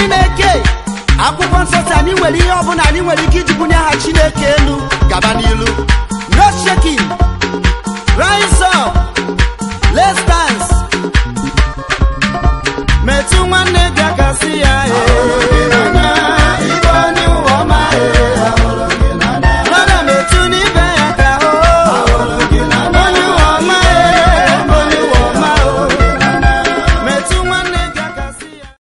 n'ime akwụkwọ nsọ si anyị nwere ihe ọbụla anyị nwere ike iji bunye aha chineke elu gaba n'ilu no rise up let's dance metụ nwanne gị aka si ya ee